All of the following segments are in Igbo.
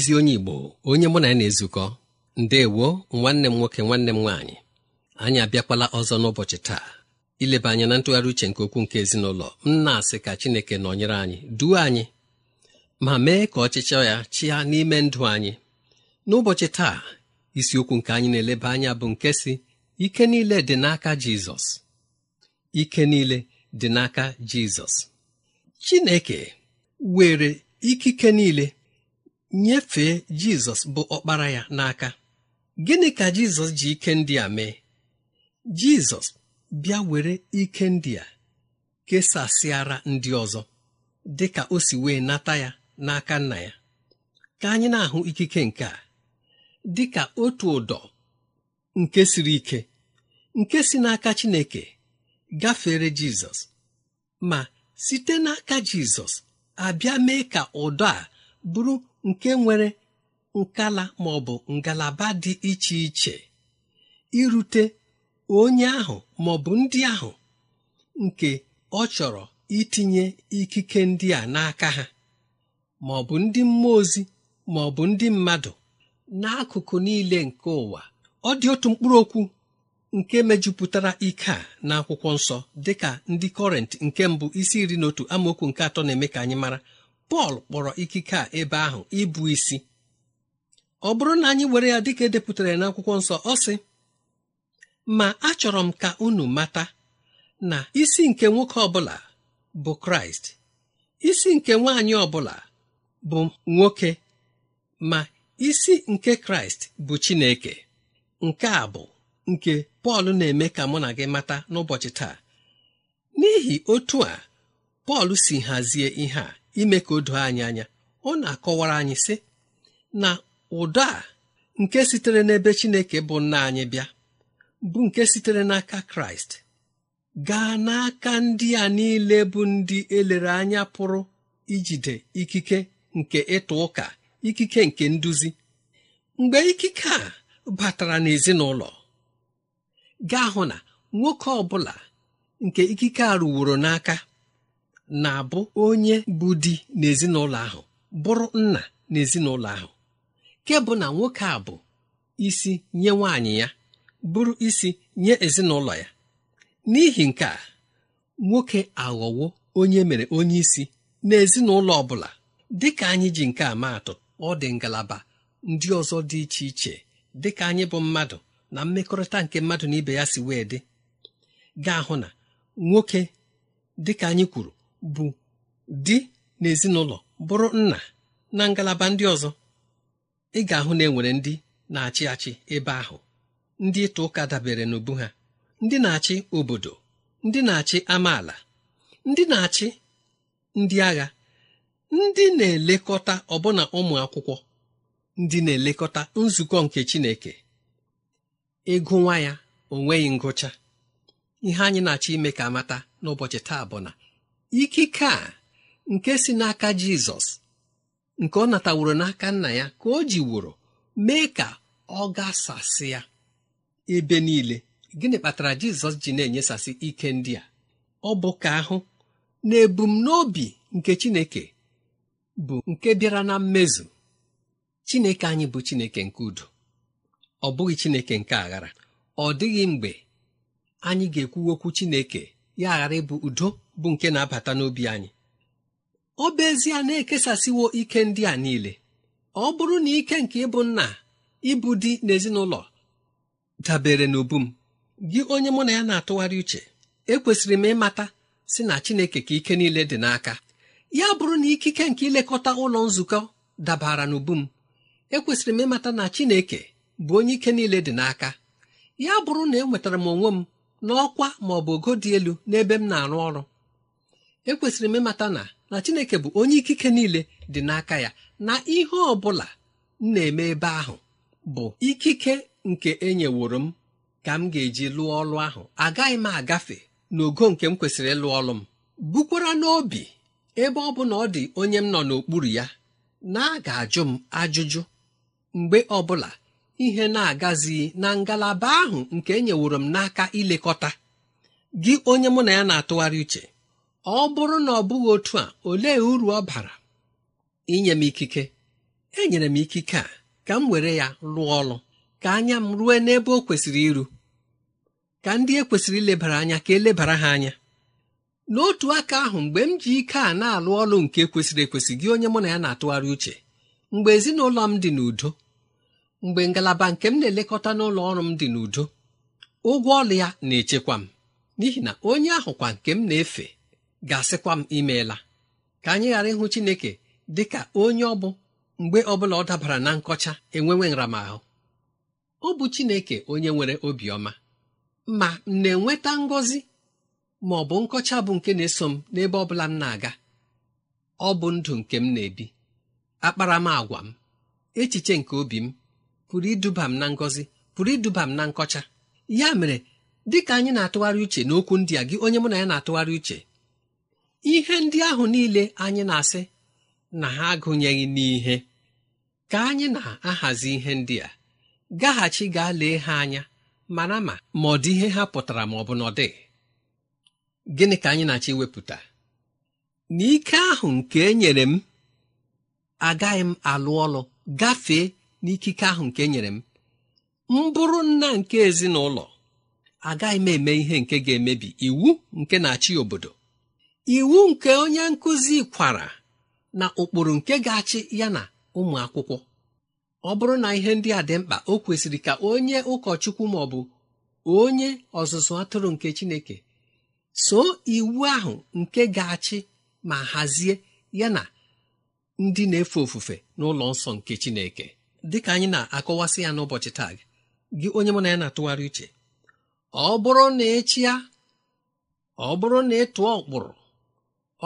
ezi onye Igbo onye mụ na ya na-ezukọ ndewo nwanne m nwoke nwanne m nwaanyị anyị abịakwala ọzọ n'ụbọchị taa ileba anya na ntụgharị uche nke okwu nke ezinụlọ m na-asị ka Chineke nọnyere anyị duo anyị ma mee ka ọchịchọ ya chịa n'ime ndụ anyị n'ụbọchị taa isiokwu nke anyị na-eleba anya bụ nke si ike niile dị n'aka Jizọs ike niile dị n'aka Jizọs Chineke were ikike niile nyefee jizọs bụ ọkpara ya n'aka gịnị ka jizọs ji ike ndị a mee jizọs bịa were ike ndị a kesasịara ndị ọzọ dị ka o si wee nata ya n'aka nna ya ka anyị na-ahụ ikike nke a dị ka otu ụdọ nke siri ike nke si n'aka Chineke gafere Jizọs ma site n'aka Jizọs abịa mee ka ụdọ a bụrụ nke nwere nkala ma ọ bụ ngalaba dị iche iche irute onye ahụ ma ọ bụ ndị ahụ nke ọ chọrọ itinye ikike ndị a n'aka ha ma ọ bụ ndị mmụọ ozi ma ọ bụ ndị mmadụ n'akụkụ niile nke ụwa ọ dị otu mkpụrụ okwu nke mejupụtara ike a n'akwụkwọ nsọ dị ka ndị kọrent nke mbụ isi iri na otu amaokwu nke atọ na-eme ka anyị mara pọl kpọrọ ikike a ebe ahụ ịbụ isi ọ bụrụ na anyị were ya dịka edepụtara n'akwụkwọ nsọ ọ sị ma achọrọ m ka unu mata na isi nke nwoke ọbụla bụ kraịst isi nke nwaanyị ọbụla bụ nwoke ma isi nke kraịst bụ chineke nke a bụ nke pọl na-eme ka mụ na gị mata n'ụbọchị taa n'ihi otu a pọl si hazie ihe a ime ka o anyị anya ọ na-akọwara anyị sị na ụdọ a nke sitere n'ebe Chineke bụ nna anyị bịa bụ nke sitere n'aka Kraịst gaa n'aka ndị a niile bụ ndị elere anya pụrụ ijide ikike nke ịtụ ụka ikike nke nduzi mgbe ikike a batara n'ezinụlọ gaa hụ na nwoke ọ bụla nke ikike a ruworo n'aka na-abụ onye bụ di n'ezinụlọ ahụ bụrụ nna n'ezinụlọ ahụ ke bụ na nwoke a bụ isi nye nwaanyị ya bụrụ isi nye ezinụlọ ya n'ihi nke a nwoke aghọwo onye mere onye isi n'ezinụlọ ọ bụla dịka anyị ji nke a maatụ ọ dị ngalaba ndị ọzọ dị iche iche dịka anyị bụ mmadụ na mmekọrịta nke mmadụ na ibe ya si wee dị ga-ahụ na nwoke dịka anyị kwuru bụ di na ezinụlọ bụrụ nna na ngalaba ndị ọzọ ị ga-ahụ na enwere ndị na-achị achị ebe ahụ ndị ịta ụka dabere n'ubu ha ndị na-achị obodo ndị na-achị amaala ndị na-achị ndị agha ndị na-elekọta ọbụna ụmụ akwụkwọ ndị na-elekọta nzukọ nke Chineke ịgụ nwa ya onweghị ngụcha ihe anyị na-achọ ime ka amata n'ụbọchị taa bụ na ikike a nke si n'aka jizọs nke ọ nataworo n'aka nna ya ka o ji wụrụ mee ka ọ ga gasasị ya ebe niile gịnị kpatara jizọs ji na-enyesasị ike ndị a ọ bụ ka ahụ na ebumnobi nke chineke bụ nke bịara na mmezu chineke anyị bụ chineke nke udo ọ bụghị chineke nke aghara ọ dịghị mgbe anyị ga-ekwu okwu chineke ya aghara ịbụ udo bụ nke na-abata n'obi anyị ọ bụ ezie na-ekesasịwo ike ndị a niile ọ bụrụ na ike nke ịbụ nna ịbụ di n'ezinụlọ dabere na m gị onye mụ na ya na-atụgharị uche ekwesịrị m ịmata si na Chineke ka ike niile dị n'aka ya bụrụ na ikike nke ilekọta ụlọ nzukọ dabara na ubu m ekwesịrị m ịmata na Chineke bụ onye ike niile dị n'aka ya bụrụ na enwetara m onwe m n'ọkwa ma ọ bụ ogo dị elu n'ebe m na-arụ ọrụ ekwesịrị m ịmata na na chineke bụ onye ikike niile dị n'aka ya na ihe ọ bụla m na-eme ebe ahụ bụ ikike nke enyeworo m ka m ga-eji lụọ ọlụ ahụ agaghị m agafe n'ogo nke m kwesịrị ịlụ ọlụ m bukwara n'obi ebe ọ bụ na ọ dị onye m nọ n'okpuru ya na a ga-ajụ m ajụjụ mgbe ọbụla ihe na-agazighị na ngalaba ahụ nke enyeworo m n'aka ilekọta gị onye mụ na ya na-atụgharị uche ọ bụrụ na ọ bụghị otu a olee uru ọ bara inye m ikike enyere m ikike a ka m were ya rụọ ọrụ ka anya m rue n'ebe o kwesịrị iru ka ndị e kwesịrị ilebara anya ka elebara ha anya n'otu aka ahụ mgbe m ji ike a na-alụ ọrụ nke kwesịrị ekwesị gị onye mụ na ya na-atụgharị uche mgbe ezinụlọ m dị n'udo mgbe ngalaba nke m na-elekọta n'ụlọ ọrụ m dị n'udo ụgwọ ọrụ ya na-echekwa m n'ihi na onye ahụ kwa nke m na-efe ga-asịkwa m imeela ka anyị ghara ịhụ Chineke dị ka onye ọ bụ mgbe ọbụla ọ dabara na nkọcha enwewe nramahụ ọ bụ Chineke onye nwere obiọma ma m na-enweta ngọzi ma ọ bụ nkọcha bụ nke na-eso m n'ebe ọ bụla m na-aga ọ bụ ndụ nke m na-ebi akparamagwa m echiche nke obi m pụrụ iduba m na ngọzi pụrụ iduba m na nkọcha ya mere ka anyị na-atụgharị uche n'okwu ndị a gị onye mụ na ya na-atụgharị uche ihe ndị ahụ niile anyị na-asị na ha agụnyeghị n'ihe ka anyị na-ahazi ihe ndị a gaghachi gaa lee ha anya mara ma ma ọ dị ihe ha pụtara ma ọ bụ n'ọdị, gịnị ka anyị na-achọ iwepụta na ike ahụ nke enyere m agaghị m alụ ọlụ gafee n'ikike ahụ nke e nyere m m bụrụ nna nke ezinụlọ agaghị m eme ihe nke ga-emebi iwu nke na-achị obodo iwu nke onye nkụzi kwara na ụkpụrụ nke ga-achị ya na ụmụ akwụkwọ ọ bụrụ na ihe ndị a dị mkpa o kwesịrị ka onye ụkọchukwu ma ọ bụ onye ọzụzụ atụrụ nke chineke so iwu ahụ nke ga-achị ma hazie ya na ndị na-efe ofufe n'ụlọ nsọ nke chineke dịka anyị na-akọwasị ya n'ụbọchị taa gị onye mụ na ya na-atụgharị uche ọ bụrụ na ị ọ bụrụ na ịtụọ ụkpụrụ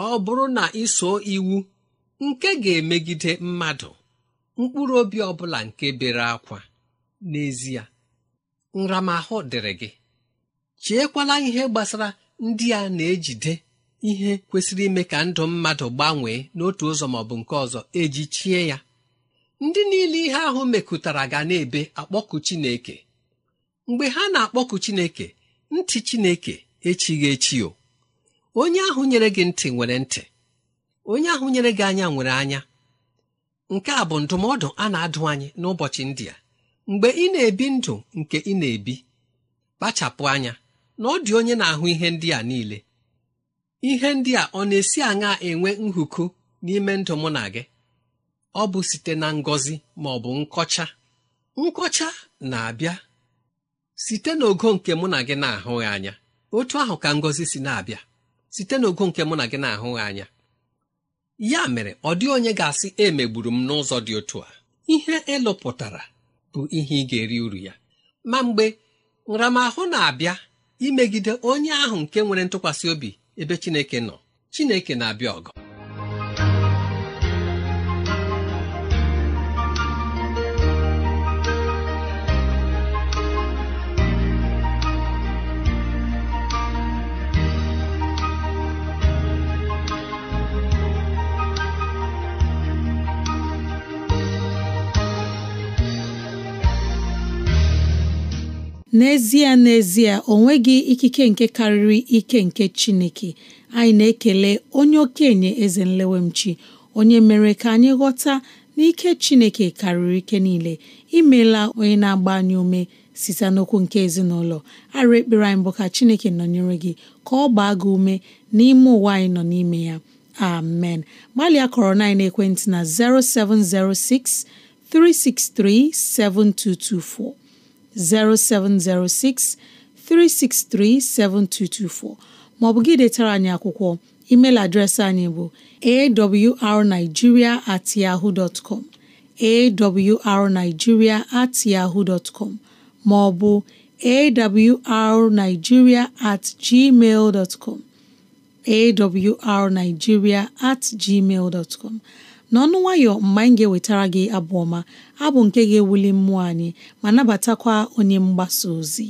ọ bụrụ na iso iwu nke ga-emegide mmadụ mkpụrụ obi ọ bụla nke bere akwa n'ezie nramahụ dịrị gị chiekwala ihe gbasara ndị a na-ejide ihe kwesịrị ime ka ndụ mmadụ gbanwee n'otu ụzọ ma ọ bụ nke ọzọ eji chie ya ndị niile ihe ahụ mekụtara ga na-ebe akpọkụ Chineke mgbe ha na-akpọkụ Chineke ntị Chineke echighị echi o onye ahụ nyere gị ntị nwere ntị onye ahụ nyere gị anya nwere anya nke a bụ ndụmọdụ a na-adụ anyị n'ụbọchị ndị a mgbe ị na-ebi ndụ nke ị na-ebi kpachapụ anya na ọ dị onye na-ahụ ihe ndị a niile ihe ndị a ọ na-esi aṅa enwe nhụkụ n'ime ndụ mụ na gị ọ bụ site na ngọzi ma ọ bụ nkọcha nkọcha na-abịa site n'ogo nke mụ na gị na-ahụghị anya otu ahụ ka ngọzi si na-abịa site n'ogo nke mụ na gị na-ahụghị anya ya mere ọ dị onye ga-asị emegburu m n'ụzọ dị otu a ihe ịlụpụtara bụ ihe ị ga-eri uru ya ma mgbe nramahụ na-abịa imegide onye ahụ nke nwere ntụkwasị obi ebe Chineke nọ Chineke na-abịa ọgụ n'ezie n'ezie o nweghị ikike nke karịrị ike nke Chineke anyị na-ekele onye okenye eze nlewemchi onye mere ka anyị ghọta n'ike Chineke karịrị ike niile imela onye na-agba anyị ume site n'okwu nke ezinụlọ arịrị ekpere anyị bụ ka Chineke nọnyere gị ka ọ gbaa gị ume n'ime ụwa anyị nọ n'ime ya amen gbalịa kọrọ na ekwentị na 0706 363 7224 0706 363 7224 maọbụ gị detara anyị akwụkwọ email adreesị anyị bụ awrnigeria at yahoo dot com awrnigeria at yahoo dot maọbụ awrnigeria at gmail dot com at gmail dot n'ọnụ nwayọ mgbe anyị ga-ewetara gị abụ ọma abụ nke ga-ewuli mmụọ anyị ma nabatakwa onye mgbasa ozi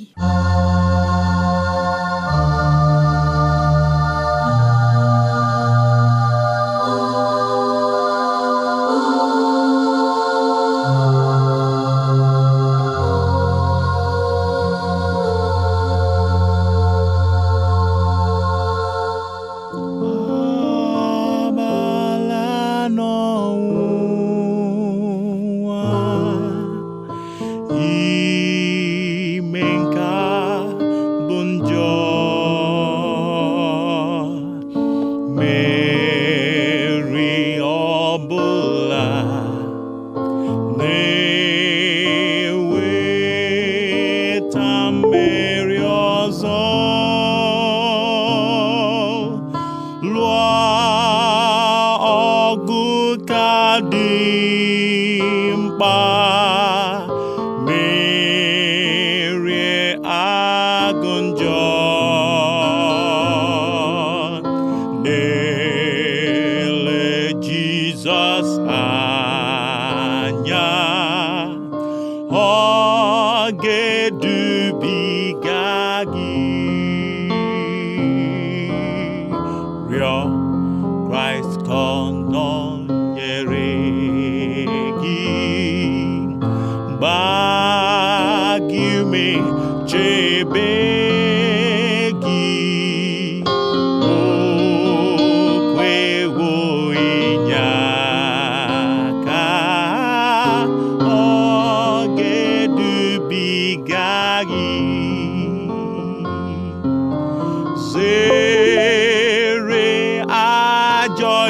ajọ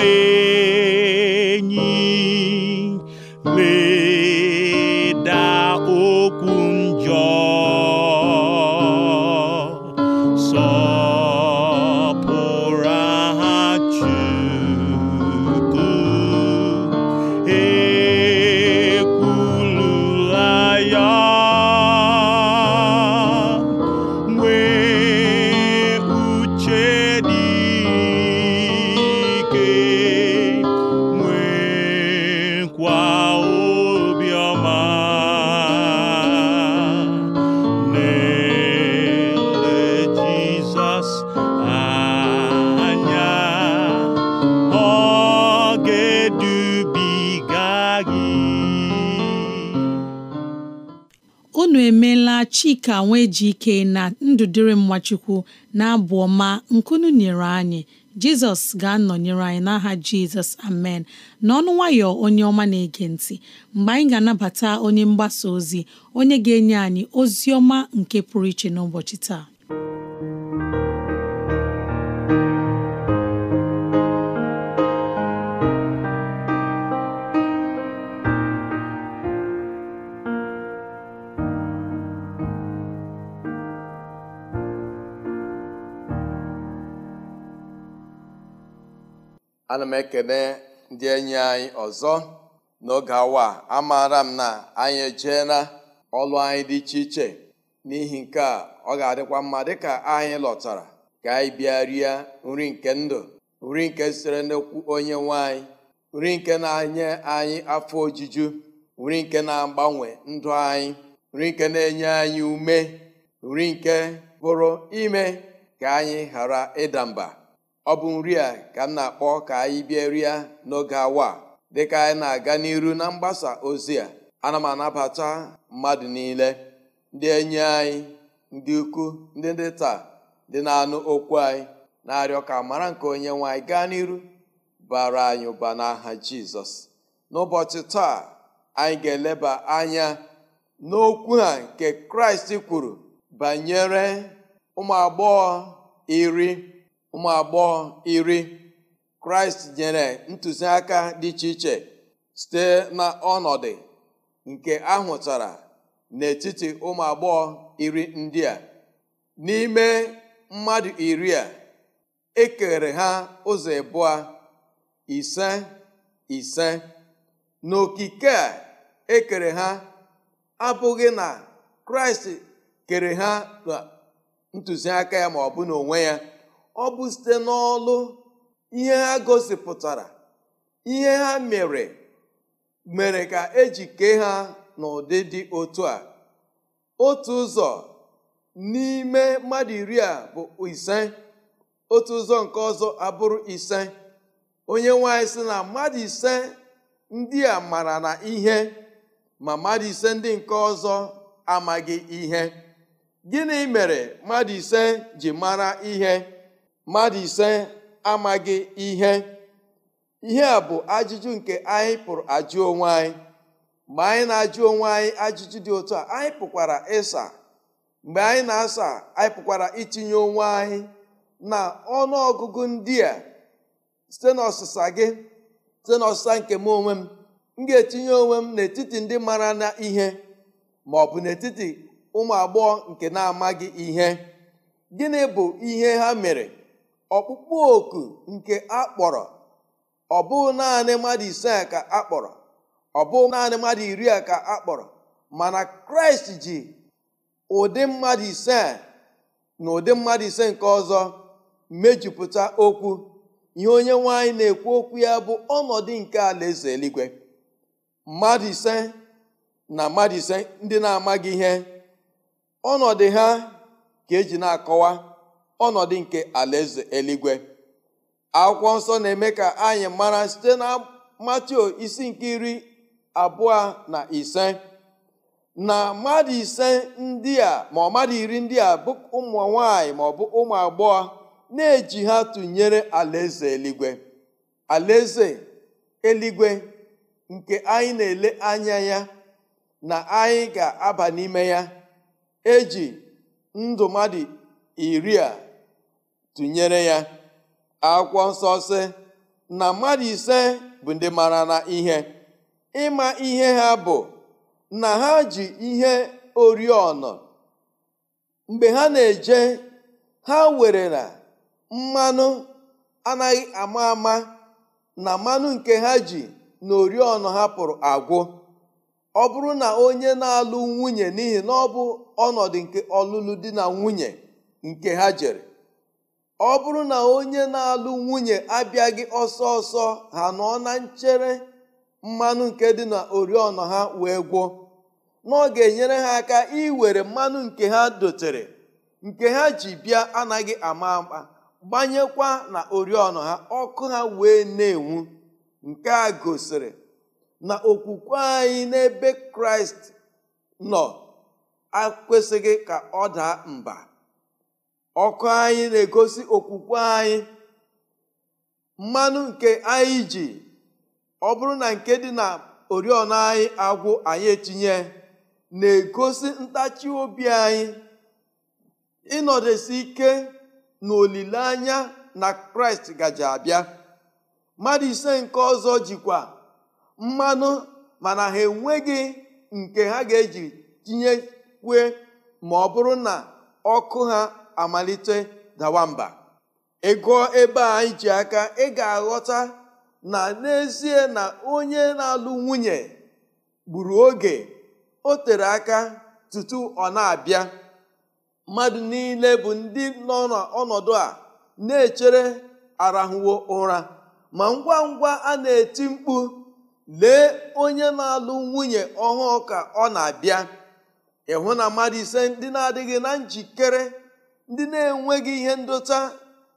enyi lee ka nwee ji ike na ndụ dịrị mmachukwu na-abụ ọma nkunu nyere anyị jizọs ga-anọnyere anyị n'aha jizọs amen n'ọnụ nwayọ onye ọma na-ege ntị mgbe anyị ga-anabata onye mgbasa ozi onye ga-enye anyị ozi ọma nke pụrụ iche n'ụbọchị taa ana m ekene ndị enyi anyị ọzọ n'oge awa amaara m na anyị ejeela ọlụ anyị dị iche iche n'ihi nke a ọ ga-adịkwa mma dịka anyị lọtara ka anyị bịa rie nri nke ndụ nri nke sitere n'okwu onye nwe anyị nri nke na-enye anyị afọ ojuju nri nke na-agbanwe ndụ anyị nri nke na-enye anyị ume nri nke bụrụ ime ka anyị ghara ịda mba ọ bụ nri a ka m na-akpọ ka anyị bịa rịa n'oge awa dịka anyị na-aga n'iru na mgbasa ozi a ana m anabata mmadụ niile ndị enyi anyị ndị ukwu ndị ndị taa ndị na-anụ okwu anyị na-arịọ ka mara nke onye nwe anyị gaa n'iru bara anyị ụba n'aha jizọs n'ụbọchị taa anyị ga-eleba anya n'okwu a nke kraịst kwuru banyere ụmụ agbọghọ iri ụmụ agbọghọ iri kraịst nyere ntụziaka dị iche iche site na nke ahụtara n'etiti ụmụ agbọghọ iri ndị a n'ime mmadụ iri a ekere ha ụzọ abụọ ise ise n'okike a ekere ha abụghị na kraịst kere ha ntụziaka ya ma ọ bụ n'onwe ya ọ bụ site n'ọlụ ihe ha gosipụtara ihe ha mere mere ka eji kee ha n'ụdị dị otu a otu ụzọ n'ime mmadụ iri a bụ ise otu ụzọ nke ọzọ abụrụ ise onye nwanyị sị na mmadụ ise ndị a mara na ihe ma mmadụ ise ndị nke ọzọ amaghị ihe gịnị mere mmadụ ise ji mara ihe mmadụ ise amaghị ihe ihe a bụ ajụjụ nke anyị pụrụ ajụ onwe anyị mgbe anyị na-ajụ onwe anyị ajụjụ dị otu a anyị pụkwara ịsa mgbe anyị na-asa anyị pụkwara itinye onwe anyị na ọnụọgụgụ ndị a site n'ọsịsa gị site n'ọsịsa nke m onwe m m ga-etinye onwe m n'etiti ndị mara na ihe ma ọ bụ n'etiti ụmụ agbọghọ nke na-amaghị ihe gịnị bụ ihe ha mere ọkpụkpụ oku nke akpọrọ ọ naanị mmadụ ise ka akpọrọ naanị mmadụ iri a ka akpọrọ mana kraịst ji ụdị mmadụ ise na ụdị mmadụ ise nke ọzọ mejupụta okwu ihe onye nwanyị na-ekwu okwu ya bụ ọnọdụ nke alaeze eluigwe mmadụ ise na mmadụ ise ndị na-amaghị ihe ọnọdụ ha ka eji na-akọwa ọnọdụ nke alaeze eligwe akwụkwọ nsọ na-eme ka anyị mara site na matio isi nke iri abụọ na ise na mmadụ ise ndị a ma ọ mmadụ iri ndị a bụ ụmụ nwanyị ma ọ bụ ụmụ agbọghọ na-eji ha tụnyere alaeze eluigwe alaeze eligwe nke anyị na-ele anya ya na anyị ga-aba n'ime ya eji ndụ mmadụ iri a tụnyere ya akwụkwọ nsọ na mmadụ ise bụ ndị mara na ihe ịma ihe ha bụ na ha ji ihe oriọna mgbe ha na-eje ha were na mmanụ anaghị ama ama na mmanụ nke ha ji na oriọna pụrụ agwụ ọ bụrụ na onye na-alụ nwunye n'ihi na ọ bụ ọnọdụ nke ọlụlụ di na nwunye nke ha jere ọ bụrụ na onye na-alụ nwunye abịaghị ọsọ ọsọ ha nọ na nchere mmanụ nke dị na oriọna ha wee gboo na ga-enyere ha aka iwere mmanụ nke ha dotere nke ha ji bịa anaghị ama ama gbanyekwa na oriọna ha ọkụ ha wee na-enwu nke a gosiri na okwukwe anyị n'ebe kraịst nọ akwesịghị ka ọ daa mba ọkụ anyị na-egosi okwukwe anyị mmanụ nke anyị ji ọ bụrụ na nke dị na oriọna anyị agwụ anyị etinye na-egosi ntachi obi anyị ịnọdụsi ike na olileanya na kraịst gaje abịa mmadụ ise nke ọzọ jikwa mmanụ mana ha enweghị nke ha ga-eji tinyekwue ma ọ bụrụ na ọkụ ha amalite dawa mba ịgụọ ebe a anyị ji aka ị ga-aghọta na n'ezie na onye na-alụ nwunye gburu oge o tere aka tutu ọ na-abịa mmadụ niile bụ ndị nọ n'ọnọdụ a na-echere arahụwo ụra ma ngwa ngwa a na-eti mkpu lee onye na-alụ nwunye ọhụụ ka ọ na-abịa ịhụ na mmadụ ise ndị na-adịghị na njikere ndị na-enweghị ihe ndota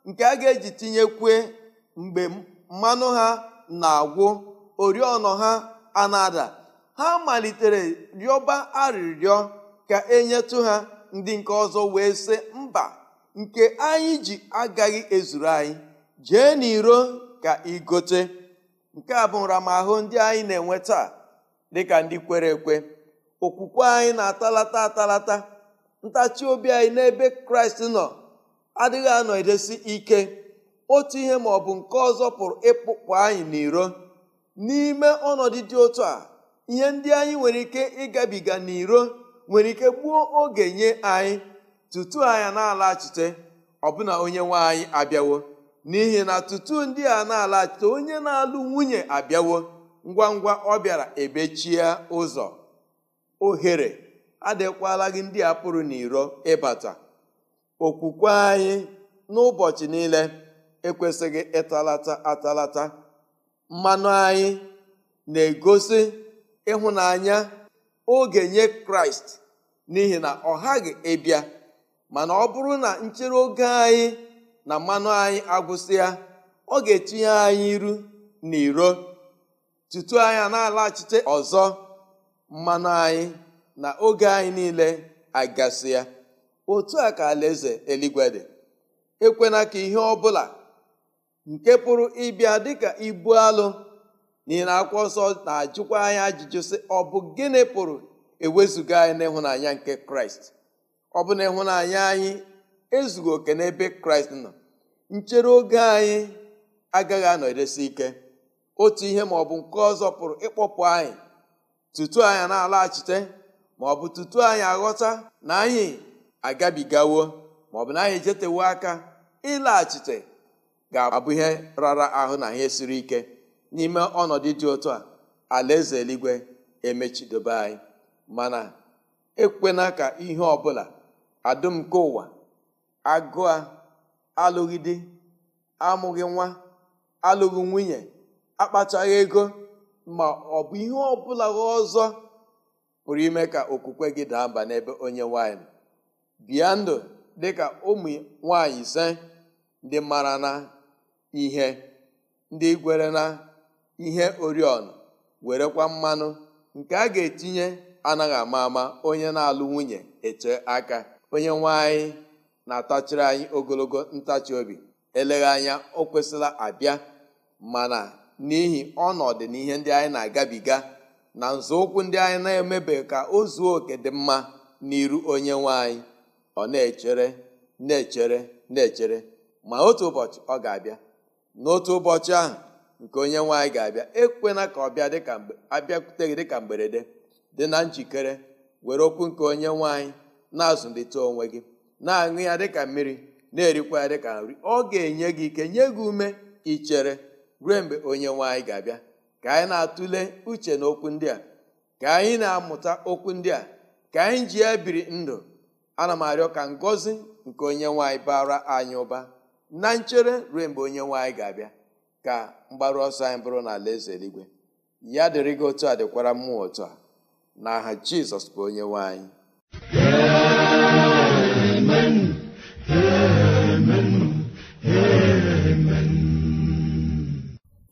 nke a ga-eji tinyekwe mgbe mmanụ ha na-agwụ oriọna ha ana-ada ha malitere rịọba arịrịọ ka enyetụ ha ndị nke ọzọ wee sị mba nke anyị ji agaghị ezuru anyị jee n'iro ka igote nke a bụ nramahụ ndị anyị na-enwe taa dịka ndị kwere ekwe okwukwe anyị na-atalata atalata ntachi obi anyị n'ebe kraịst nọ adịghị anọdesi ike otu ihe ma ọ bụ nke ọzọ pụrụ ịpụpụ anyị n'iro n'ime ọnọdụ dị otu a ihe ndị anyị nwere ike ịgabiga n'iro nwere ike gbuo oge nye anyị tutu anyị na-alachite ọbụna onye nwe anyị abịawo n'ihi na tutu ndị a na-alachite onye na-alụ nwunye abịawo ngwa ngwa ọ bịara ebechie ụzọ ohere adịkwala gị ndị a pụrụ n'iro ịbata okwukwe anyị n'ụbọchị niile ekwesịghị ịtalata atalata mmanụ anyị na-egosi ịhụnanya oge nye kraịst n'ihi na ọ ghaghị ebia mana ọ bụrụ na nchere oge anyị na mmanụ anyị agwụsịa ọ ga-etinye anyị iru n'iro tutu anya na-alaghachite ọzọ mmanụ anyị na oge anyị niile agasị ya otu a ka alaeze eluigwe dị ekwena ka ihe ọ bụla nke pụrụ ịbịa dịka ibu alụ n'ihi na akwụkwọ nsọ na-ajụkwa anyị ajụjụ sị ọ bụ gịnị pụrụ ewezuga anyị n'ịhụnanya nke kraịst ọ bụ na ịhụnanya anyị ezughị oke n'ebe kraịst nọ nchere oge anyị agaghị anọdesi ike otu ihe ma ọ bụ nke ọzọ pụrụ ịkpọpụ anyị tutu anyị na-alaghachite ma ọ bụ tutu anyị aghọta na anyị agabigawo bụ na anyị ejetewo aka ịlaghachite ga-abụ ihe rara ahụ na ihe siri ike n'ime ọnọdụ dị ụtọ a alaeze eluigwe emechidobe anyị mana ekwena ka ihe ọbụla adụm nke ụwa agụa alụghị di amụghị nwa alụghị nwunye akpachaghị ego ma ọ bụ ihe ọbụla ọzọ pụrụ ime ka okwukwe gị daa mba n'ebe onye nwanyị bịa ndụ ka ụmụ nwanyị ise dị mara na ihe ndị gwere na ihe oriọna werekwa mmanụ nke a ga-etinye anaghị ama ama onye na-alụ nwunye eche aka onye nwanyị na-atachiri anyị ogologo ntachi obi eleghị anya o kwesịla abịa mana n'ihi ọnọdụ na ihe ndị anyị na-agabiga na nzọụkwụ ndị anyị na-emebe ka o zuo oke dị mma n'iru onye nwanyị anyị ọ na-echere na-echere na-echere ma otu ụbọchị ọ ga-abịa n'otu ụbọchị ahụ nke onye nwanyị anyị ga-abịa ekwena ka ọ bịa dịka abịakwute gị dịka mgberede dị na njikere were okwu nke onye nwanyị anyị na-azụlite onwe gị na-aṅụ ya dịka mmiri na-erikwa ya dịka nri ọ ga-enye gị ike nye gị ume ichere ruo mgbe onye nwe anyị ga-abịa ka anyị na-atụle uche na okwu ndị a ka anyị na-amụta okwu ndị a ka anyị ji ya biri ndụ ana m arịọ ka ngọzi nke onye nwanyị bara anyị ụba na nchere ruo mgbe onye nwanyị ga-abịa ka mgbaru ọsọ anyị bụrụ na ala eze eluigwe ya dịrị gị otu a dịkwara mmụọ otu a na aha Jizọs bụ onye nwanyị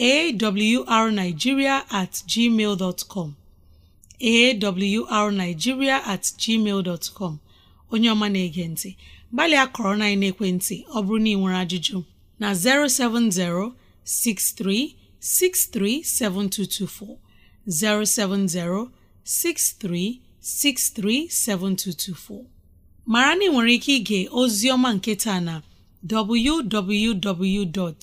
arigiria at gmail com arigiria at gmail com onye ọma na-ege ntị gbalịa kọrọ na ekwentị ọ bụrụ na ị nwere ajụjụ na 070 637224 070-6363-7224 mara na ị nwere ike ịga ozi ọma nketa na www.awr.org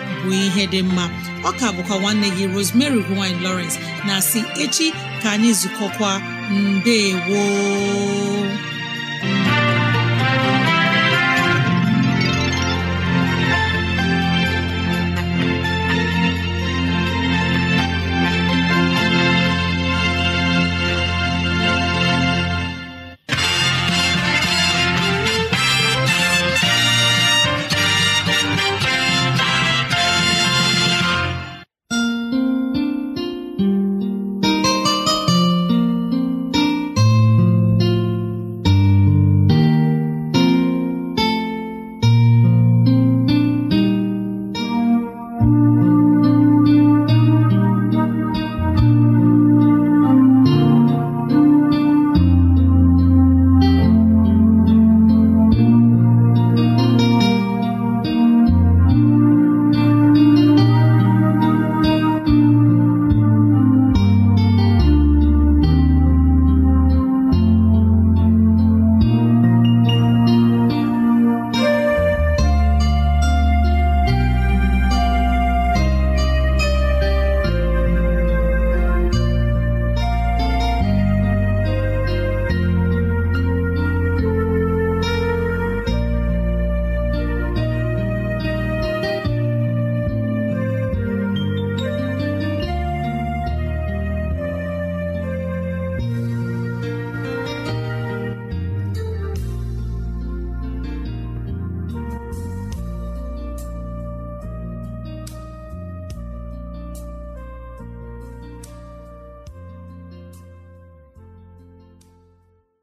bụ ihe dị mma ọka bụkwa nwanne gị Rosemary gine lowrence na si echi ka anyị zukọkwa mbe ewo.